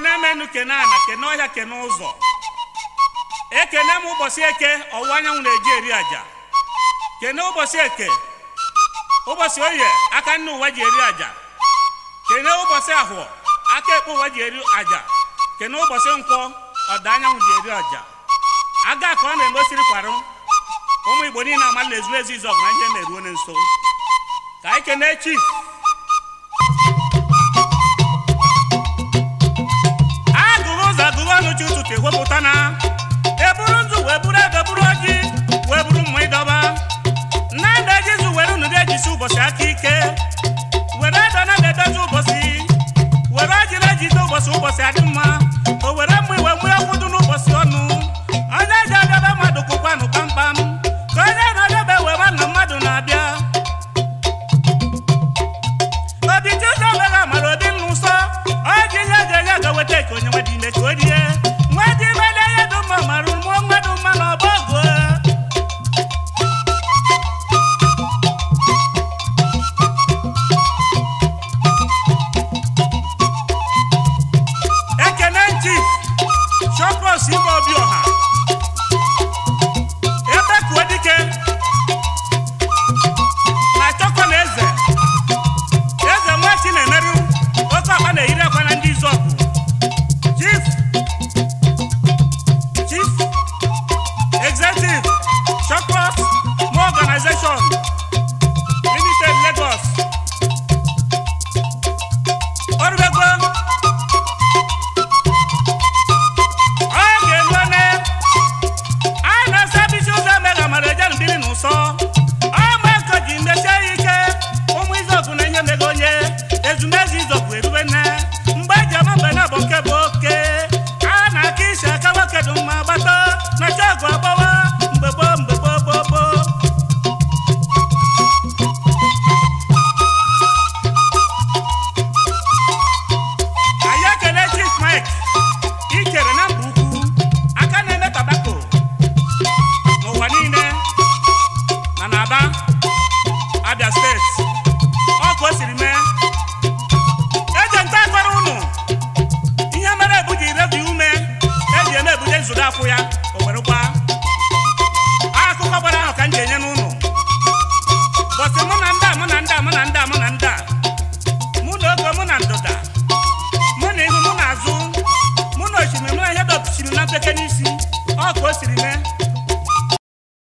kene menu kene ana kene ọhịa kene ụzọ ekene m ụbọchị eke ọwụwa e anyanwụ na-eji eri aja kene ụbọchị eke ụbọchị oye aka nne ụwa ji eri aja kene ụbọchị ahụọ aka ekpe ụwa ji eri aja kene ụbọchị nkwọ ọda anyanwụ ji eri aja aga ka ọ na-emesiri kwarụ ụmụ igbo niile amala ezu ezu izọgụ na ihe na-eruo na nso ka anyị kene chief na-egwepụta na eburu nzu wee buru ego buru ọjị wee buru mma ịdọba na ede jizu were unu ga-ejisi ụbọchị aka ike were edo na ga-edozi ụbọchị were ọjị na-ejide ụbọchị ụbọchị adị mma o were mma iwe mmiri ọgwụ dị n'ụbọchị ọnụ onye ji adebe mmadụ kụkwanụ kpamkpam ka onye na-adebe wee ma na mmadụ na-abịa obi ji ụzọ mega mara obi nna ụsọ ọ ji ihe ga-enye ga weta eke onye nwede nsọ ọgba nko ji ike ụmụ izọbụ na-enye mego onye ezumezu izọbụ erube nne mgbe eji ama mbe na bụ nke bụ oke a na aka isi aka nwoke dụ mma gbata na chọọgụ agba akwụ ya o were akụkọ gbara ahụ ka m ga-enye n'ụlọ bọsị mụ na ndị a mụ na ndị a mụ na ndị a mụ na ndị a mụ na ogo mụ na ndụda mụ na ihu mụ na azụ mụ na osimiri mụ na ihe dọpụsiri na mpeke n'isi ọ ka o siri mee